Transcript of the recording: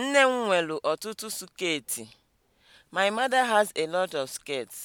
Nne m nwelu ọtụtụ sketi My mother has a lot of skirts.